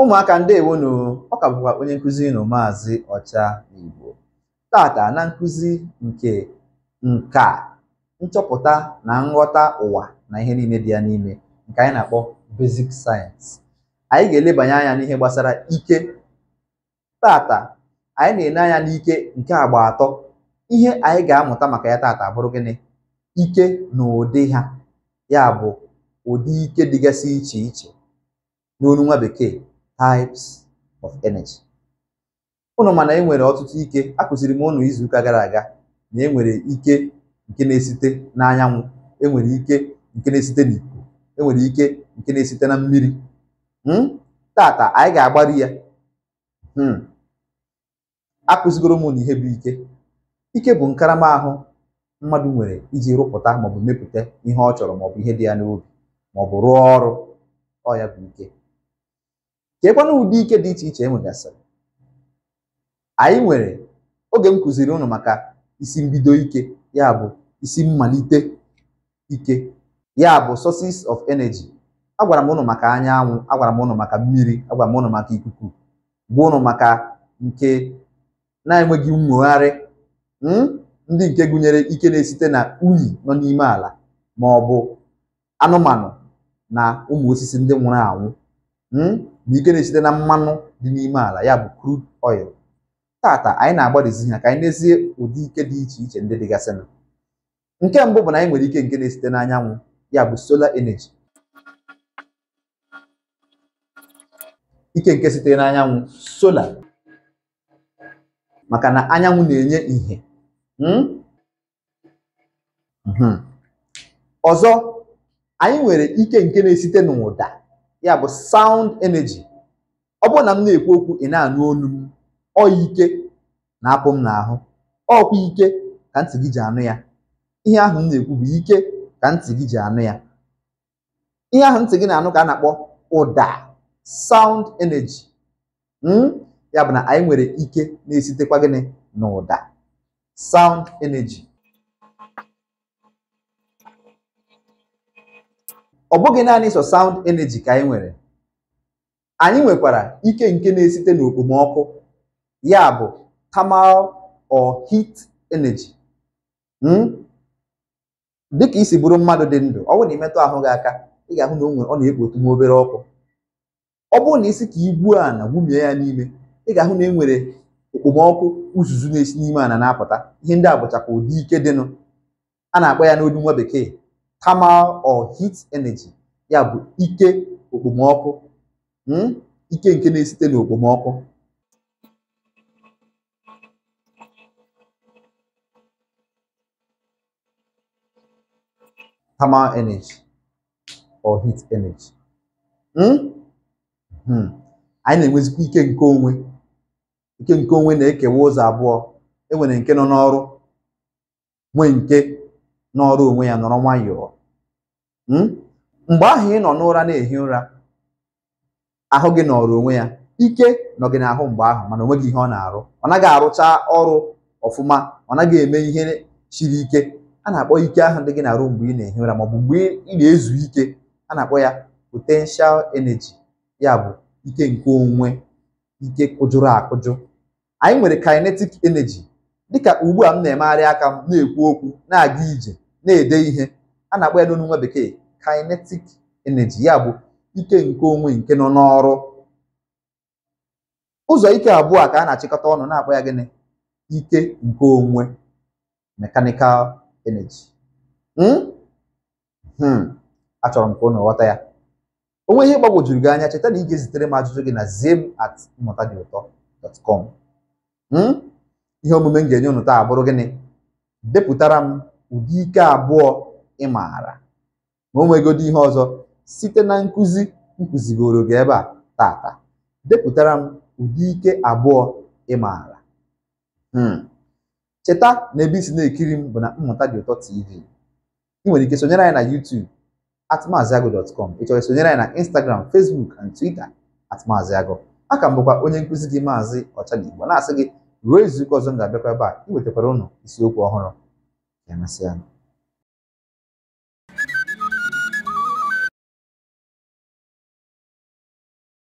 ụmụaka ndewonu ọ ka bụkwa onye nkụzi na maazị ọcha igbo tata na nkụzi nke nka nchọpụta na nghọta ụwa na ihe niile dị ya n'ime nke anyị na-akpọ basic sayensị anyị ga-elebanye anya n'ihe gbasara ike tata anyị na-ene anya n'ike nke agba atọ ihe anyị ga-amụta maka ya tata bụrụ gịnị ike na ụdị ha ya bụ ụdị ike dịgasị iche iche n'olu nwa bekee types of energy ụnụ mana e nwere ọtụtụ ike a kụziri m ụnụ izu ụka gara aga na e nwere ike nke na-esite n'anyanwụ enwere ike nke na-esite n'ikuku enwere ike nke na-esite na mmiri hmm? tata anyị ga-agbari ya hmm. kụzigoro m na ihe bụ ike ike bụ nkarama ahụ mmadụ nwere iji rụpụta maọbụ mepụta ihe ọ chọrọ maọbụ ihe dị ya n'obi maọbụ rụọ ọrụ ọ ya bụ ike cheekwana ụdị ike dị iche iche e nwegasịrị anyị nwere oge m kụziri ụnụ maka isi mbido ike ya bụ isi mmalite ike ya bụ sources of energy agwara m ụnụ maka anyanwụ agwara m ụnụ maka mmiri agwara m ụnụ maka ikuku gwa ụnụ maka nke na-enweghị nwogharị hmm, ndị nke gụnyere ike na-esite na unyi nọ n'ime ala ma ọ bụ anụmanụ na ụmụ osisi ndị nwụrụ anwụ hmm. na ike na-esite na mmanụ dị n'ime ala ya bụ crude oil tata anyị na-agbadizi ha ka anyị nezie ụdị ike dị iche iche ndị dịgasịna nke mbụ bụ na anyị nwere ike nke na-esite n'anyanwụ ya bụ solar energy ike nke sitere n'anyanwụ sola maka na anyanwụ na-enye ìhè hmm? Hmm. ọzọ anyị nwere ike nke na-esite n'ụda ya bụ sound energy ọ bụrụ na m na-ekwu okwu ị na-anụ olu m ọ ike na-apụ m n'ahụ ọkwa ike ka ntị gị ji anụ ya ihe ahụ m na-ekwu bụ ike ka ntị gị ji anụ ya ihe ahụ ntị gị na-anụ ka a na-akpọ ụda sound energy hmm? ya bụ na anyị nwere ike na-esitekwa gịnị na ụda sound energy ọ bụghị naanị sọ sound energy ka anyị nwere anyị nwekwara ike nke na-esite n'okpomọkụ ya bụ tamal o hit energy hmm? dịka isi bụrụ mmadụ dị ndụ ọ bụrụ na imetụ ahụ gị aka ị ga-ahụ na ọ na-ekpotu nwa obere ọkụ ọ bụrụ na isi ka a na gwumie ya n'ime ị ga-ahụ na e nwere okpomọkụ uzuzu na-esi n'ime a na-apụta ihe ndị a bụchakwa ụdị ike dịnụ a na-akpọ ya n'olu nwa bekee thermal or heat energy ya bụ ike okpomọkụ hmm? ike nke na-esite n'okpomọkụ thermal energy or heat energy hmm? Hmm. anyị na-enwezikwa ike nke onwe ike nke onwe na-ekewa ụzọ abụọ enwere nke nọ n'ọrụ nwee nke n'ọrụ onwe ya nọrọ nwayọọ hmm? mgbe ahụ ị nọ n'ụra na-ehi ụra ahụ gị nọrọ onwe ya ike nọ gị n'ahụ mgbe ahụ mana gị ihe ọ na-arụ ọ naghị arụcha ọrụ ọfụma ọ naghị eme ihe siri ike a na-akpọ ike ahụ dị gị na-arụ mgbe ị na-ehi ụra maọbụ mgbe ị na-ezu ike a na-akpọ ya potenshal energy ya bụ ike nke onwe ike kụjụrụ akụjụ anyị nwere kinetic energy dịka ugbu a m na-emegharị aka m na-ekwu okwu na-aga ije na-ede ihe a na-akpọ ya n'onu nwa bekee kinetic energy ya bụ ike nke onwe nke nọ n'ọrụ ụzọ ike abụọ a ka a na-achịkọta ọnụ na-akpọ ya gịnị ike nke onwe mechanical energy hmm? Hmm. achọrọ m ka ụnụ ghọta ya onwe ihe gbagwojuru gị anya cheta na ị ga-ezitere m ajụjụ gị na zim at mmụta dị ụtọ dot com hmm? ihe omume m ga-enye unu taa bụrụ gịnị depụtara m ụdị ike abụọ ị maara ma o nwegodo ihe ọzọ site na nkụzi nkụzigoro gị ebe a tata depụtara m ụdị ike abụọ ị maara hmm. cheta na ebe isi na-ekiri m bụ na mmụta dị ụtọ tv ị nwere ike sonyere anyị na YouTube at maaziagụ.com ị chọrọ sonyere anyị na Instagram Facebook and Twitter at aka m bụkwa onye nkụzi gị maazị Ọchadigbo na-asị gị ruo izu ụka ọzọ m ga-abịakwa ebe a iwetakwara ụnụ isiokwu ọhụrụ ya